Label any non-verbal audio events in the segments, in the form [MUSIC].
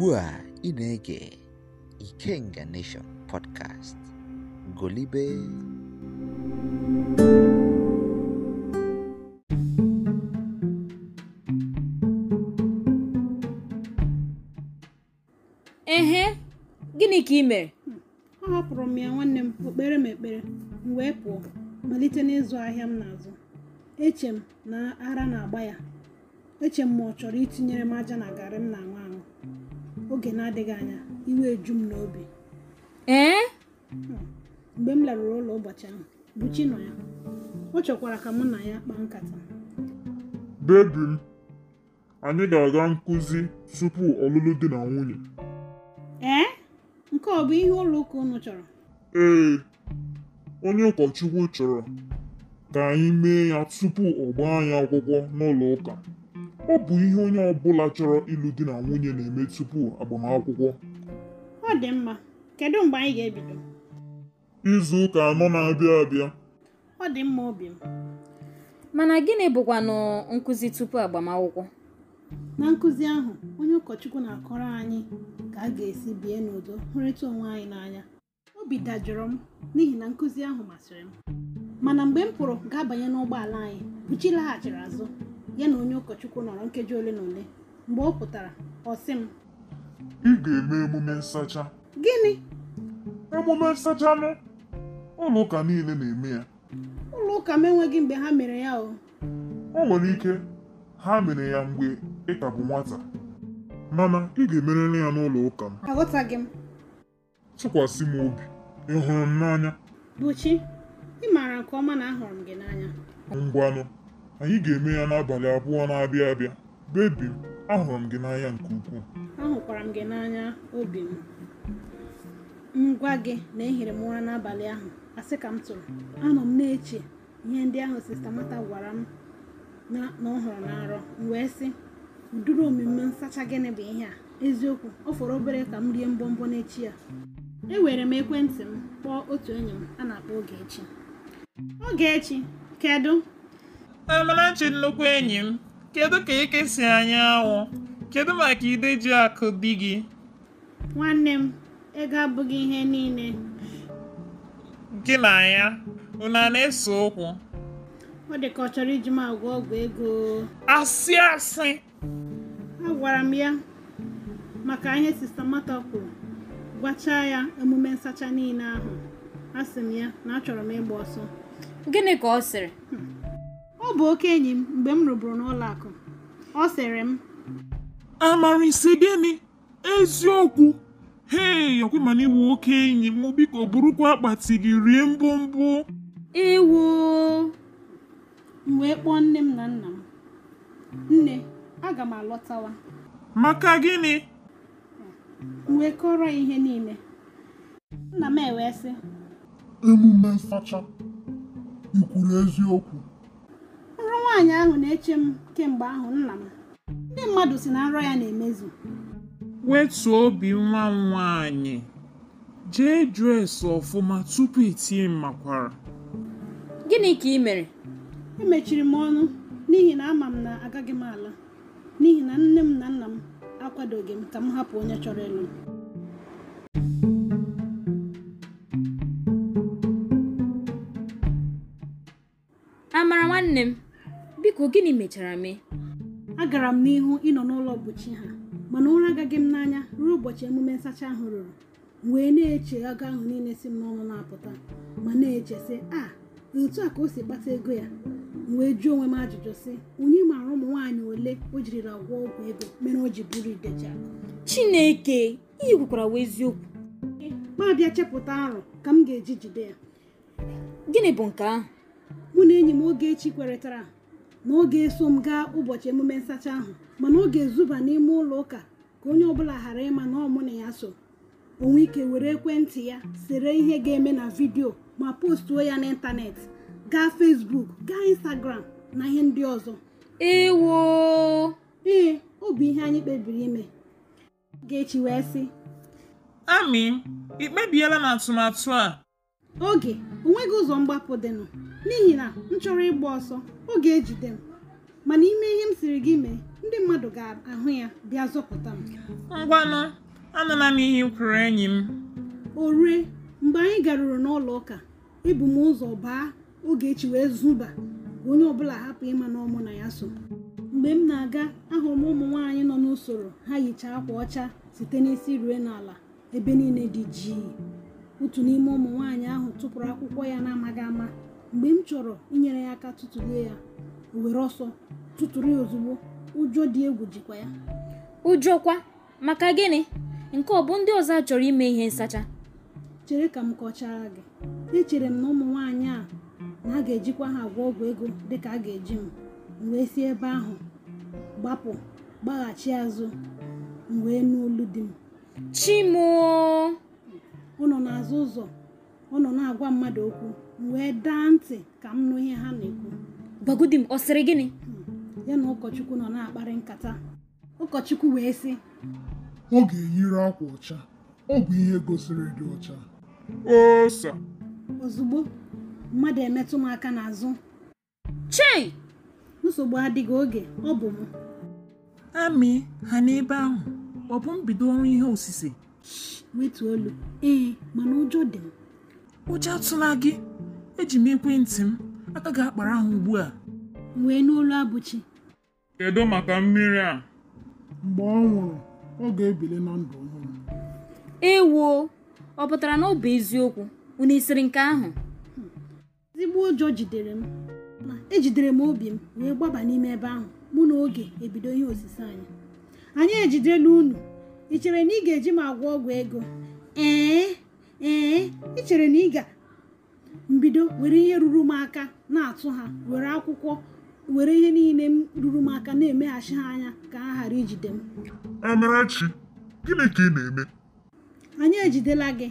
ugbu a ị na-ege Ikenga Nation podcast golibe ehe gịnị ka ị mere ahapụrụ m ya nwanne m okpere m ekpere m wee pụọ malite n'ịzụ ahịa m n'azụ eche m na ara na-agba ya eche m ma ọ chọrọ itinyere m aja na garị m na nwa oge na-adịghị anya iwe eju m n'obi ee eh? mgbe m larụrụ ụlọ ụbọchị ahụ Buchi nọ ya ọ chọkwara ka mụ na ya kpaa nkata bebi m anyị ga-aga nkụzi tupu ọlụlụ dị na nwunye ee eh? nke ọ bụ ihe ụlọ ụka ụnụ chọrọ ee onye ụkọchukwu chọrọ ka anyị mee ya tupu ọ gbaa anyị akwụkwọ n'ụlọ ụka Ọ bụ ihe onye ọ bụla chọrọ ịlụ di na nwunye na-eme tupu agbamakwụkwọ. Ọ dị mma, kedu mgbe anyị ga-ebido? Izu ụka anọ na-abịa abịa. Ọ dị mma obi m. Mana gịnị bụkwanụ nkụzi tupu agbamakwụkwọ? Na nkụzi ahụ, onye ụkọchukwu na-akọrọ anyị ka a ga-esi bie n'udo hụrịta onwe anyị n'anya. Obi dajụrụ m n'ihi na nkụzi ahụ masịrị m. Mana mgbe m pụrụ ga-abanye n'ụgbọala anyị, uchi laghachiri azụ. ya na onye ụkọchukwu nọrọ nkeji ole na ole mgbe ọ pụtara ọ sị m ị ga-eme emume nsacha gịnị emume nsacha m ụlọ ụka niile na-eme ya ụlọ ụka m enweghị mgbe ha mere ya o o nwere ike ha mere ya mgbe ị ka bụ nwata mana ị ga-emerịrị ya n'ụlọ ụka m aghọtaghị m tụkwasị m obi ị hụrụ m n'anya Buchi ị maara nke ọma na ahụrụ m gị n'anya ngwanụ anyị ga-eme ya n'abalị abụọ na-abịa abịa bebi m ahụrụ m gị n'anya nke ukwuu ahụkwara m gị n'anya obi m ngwa gị na ehiri m ụra n'abalị ahụ asị ka m tụrụ anọ m na-eche ihe ndị ahụ sista mata gwara m na ọhụrụ na arọ m wee sị udiri omume nsacha gịnị bụ ihe a eziokwu ọ fọrọ obere ka m rie mbọmbọ n'echi ya ewere m ekwentị m kpọọ otu enyi m a na-akpọ Ogechi Ogechi kedu Eh, chi nnukwu enyi m, kedu ka eke si anya anwụ, Kedu maka akụ di gị? Nwanne m, ego abụghị ihe niile. Gị na ya, unu a na-ese okwu? Ọ dị ka ọ chọrọ iji m agwọ ọgwụ ego. Asị asị! Agwara m ya maka ihe sista Mata kwuru, gwachaa ya emume nsacha niile ahụ. Asị m ya na achọrọ m ịgba ọsọ. Gịnị ka ọ sịrị? Hmm. ọ bụ oke enyi m mgbe m rụburu n'ụlọ akụ ọ sịrị m amarịsị gịnị eziokwu hei ọkwemana iwu oke enyi m biko burukwa akpati gị rie mbụmbụ Ewu m wee kpọọ nne m na nna m nne aga m alọtawa maka gịnị m wee kọrọ ya ihe niile nna m ewee emume nsacha ikwuru eziokwu nwaanyị ahụ na-eche m kemgbe ahụ nna m ndị mmadụ si na nrọ ya na-emezu wetuo obi nwa m nwaanyị jee dres ọfụma tupu itinye makwara gịnị ka ị mere emechiri m ọnụ n'ihi na ama m na agaghị m ala n'ihi na nne m na nna m akwadoghị m ka m hapụ onye chọrọ ịlụ m amara nwanne m biko gịnị mechara mee agara m n'ihu ịnọ n'ụlọ mkpuchi ha mana ụra agaghị m n'anya ruo ụbọchị emume nsacha ahụ ruru wee na-eche agụ ahụ niile si m n'ọnụ na-apụta ma na-eche sị a ah, otu a ka o si kpata ego ya wee jụọ onwe m ajụjụ sị onye maara ụmụ nwaanyị ole o jirila gwọ ọgwụ ego mere o ji bụrụ ideja chineke ihe kwukwara wee eziokwu ma bịa chepụta arụ ka m ga-eji jide ya gịnị bụ nke ahụ mụ na enyi m oge echi na ọ ga-eso m gaa ụbọchị emume nsacha ahụ mana ọ ga-ezuba n'ime ụlọ ụka ka onye ọbụla ghara ịma na ọmụ na ya so onwe ike were ekwentị ya sere ihe ga-eme na vidiyo ma postuo ya n'ịntanetị gaa fesbuk gaa Instagram na ihe ndị ọzọ ewo ee ọ bụ ihe anyị kpebiri ime ga-echi wee sị. Amị, ị kpebiela na atụmatụ a oge onweghị ụzọ mgbapụ dịnụ n'ihi na m chọrọ ịgba ọsọ oge ejide m mana ime ihe m siri gị mee ndị mmadụ ga-ahụ ya bịa zọpụta m ngwanụ anụla m ihe kwuru enyi m o rue mgbe anyị garuru n'ụlọ ụka ebu m ụzọ baa Ogechi wee zuba onye ọbụla hapụ ịma na ọmụ na ya so mgbe m na-aga ahụrụ m ụmụ nwaanyị nọ n'usoro ha yichaa akwa ọcha site n'isi rue n'ala ebe niile dị jii otu n'ime ụmụ nwaanyị ahụ tụpụrụ akwụkwọ ya na-amaghị ama mgbe m chọrọ inyere ya aka tụtụlie ya were ọsọ tụtụrụ ya ozugbo ụjọ dị egwu jikwa ya ụjọ kwa maka gịnị nke ọ bụ ndị ọzọ chọrọ ime ihe nsacha chere ka m kọchara gị echere m na ụmụ nwaanyị a na a ga-ejikwa ha agwọ ọgwụ ego dịka a ga-eji m m wee si ebe ahụ gbapụ gbaghachi azụ m wee n'olu di m chimoo ụnọ n'azụ ụzọ nọ na-agwa mmadụ okwu wee daa ntị ka m nụ ihe ha na-ekwu gbagodi m ọ sịrị gịnị hmm, ya na ụkọchukwu nọ na-akparị nkata ụkọchukwu wee sị ọ ga-eyiri akwa ọcha ọ bụ ihe gosiri dị ọcha osa ozugbo mmadụ emetụ m aka n'azụ che nsogbu adịghị oge ọ bụ m amị ha n'ebe ahụ ọ bụ mbido ọrụ ihe osise wetu olu ee mana ụjọ dị m ụjọ atụla gị eji m ekwentị m aka gị akpara ahụ ugbu a wee n'olu abụchi kedu maka mmiri a mgbe ọ nwụrụ ọ ga-ebili na ndụ ọhụrụ ewoo ọ pụtara na ọ bụ eziokwu unu esiri nke ahụ ezigbo ụjọ jidere m ma ejidere m obi m wee gbaba n'ime ebe ahụ mụ na oge ebido ihe osise anyị anyị ejidela unu ị chere na ị ga-eji m agwọ ọgwụ ego ee ee ị chere na ị ga mbido were ihe ruru m aka na-atụ ha were akwụkwọ were ihe niile m ruru m aka na-emeghachi ha anya ka ha ghara ijide m Amarachi gịnị ka ị na-eme anyị ejidela gị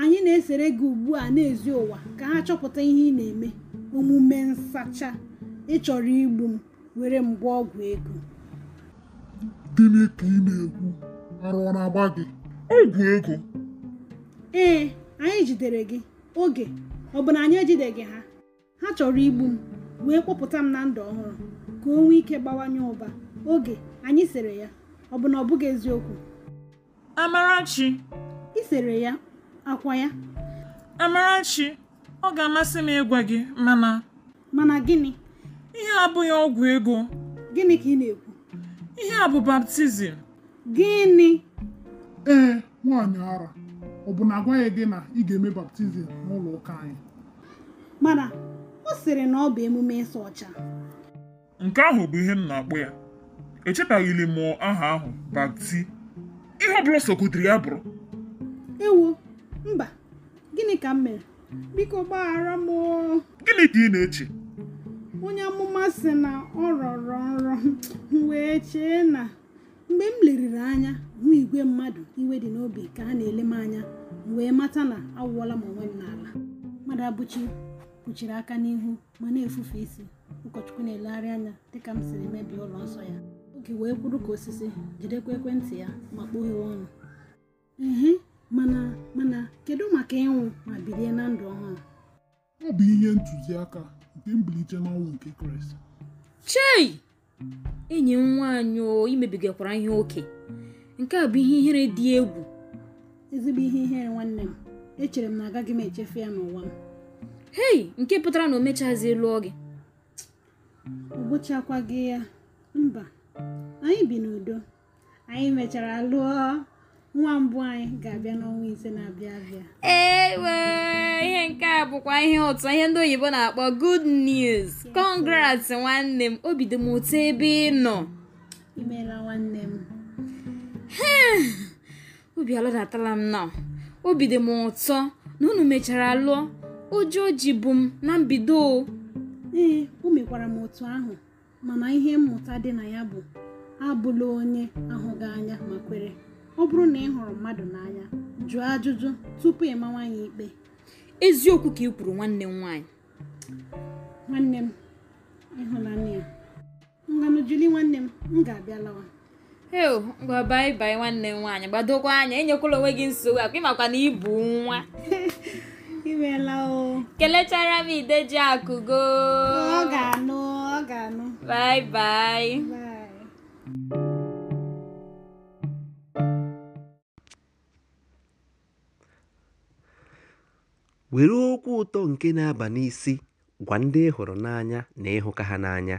anyị na-esere gị ugbu a n'ezi ụwa ka ha chọpụta ihe ị na-eme omume nsacha ị chọrọ igbu m were m gwa ọgwụ ego gịnị ka ị na-ekwu arụ ọ na-agba gị ọgwụ ego ee anyị jidere gị oge ọ bụ na anyị ejideghị ha ha chọrọ igbu m wee kpọpụta m na ndụ ọhụrụ ka o nwee ike gbawanye ụba oge anyị sere ya ọ bụ na ọ bụghị eziokwu Amarachi ị sere ya akwa ya Amarachi ọ ga-amasị m ịgwa gị mana mana gịnị ihe abụghị ọgwụ ego gịnị ka ị na-ekwu ihe a bụ baptizim Gịnị? Ee, nwaanyị ara, ọ bụ na agwaghị gị na ị ga-eme baptizim n'ụlọ ụka anyị? Mana ọ sịrị na ọ bụ emume ịsa ọcha. Nke ahụ bụ ihe m na-akpọ ya. Echetaghịli m aha ahụ bapti. Ihe ọ bụla sokụtiri ya bụrụ. Ewo, mba, gịnị ka m mere? Biko gbaghara m Gịnị ka ị na-eche? Onye amụma sị na ọ rọrọ nrọ, m wee chee na mgbe m leriri anya hụ igwe mmadụ iwe dị n'obi ka ha na-ele m anya m wee mata na awụwala m onwe m n'ala mmadụ abụchi kpuchiri aka n'ihu ma na-efufe isi ụkọchukwu na-elegharị anya dịka m siri mebie ụlọ nsọ ya oge wee kwuru ka osisi jidekwa ekwentị ya ma kpoghewe ọnụ ihe mana mana kedu maka ịnwụ ma bilie na ndụ ọhụrụ ọ bụ ihe ntụziaka nke mbilite n'ọnwụ nke Kraịst chei enyi m nwanyị mebigakwara ihe oke nke a bụ ihe ihere dị egwu ezigbo ihe ihere nwanne m echere m na agaghị m echefu ya n'ụwa m hei nke pụtara na o mechazi lụọ gị ọ bụchakwa gị ya mba anyị bi n'udo anyị mechara lụọ nwa mbụ anyị ga-abịa n'ọnwa ise na-abịa abịa ihe nke a bụkwa ihe ụtọ ihe ndị oyibo na-akpọ good news nwanne m obido m ebe ị nọ imeela nwanne m hmm. obi alọdatala m na obi dị m ụtọ na unu mechara lụọ ụjọ ji bụ m na mbido ee o mekwara m otu ahụ mana ihe mmụta dị na ya bụ abụla onye ahụghị anya ma kwere ọ bụrụ na ị hụrụ mmadụ n'anya jụọ ajụjụ tupu ị mawa ya ikpe eziokwu ka ị kwuru nwanne m nwanyị. nwanne m ịhụnanya nganu juli nwanne m m ga-abịa lawa eo ngwa bai bai nwanne m nwaanyị gbadokwa anya enyekwala onwe gị nsogbu akwa ịmakwa na ịbụ nwa imeela [LAUGHS] o kelechara m ji akụgo ọ ga-anụ ọ ga-anụ bai bai were okwu ụtọ nke na-aba n'isi gwa ndị ị hụrụ n'anya na ịhụka ha n'anya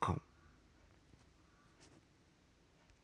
com.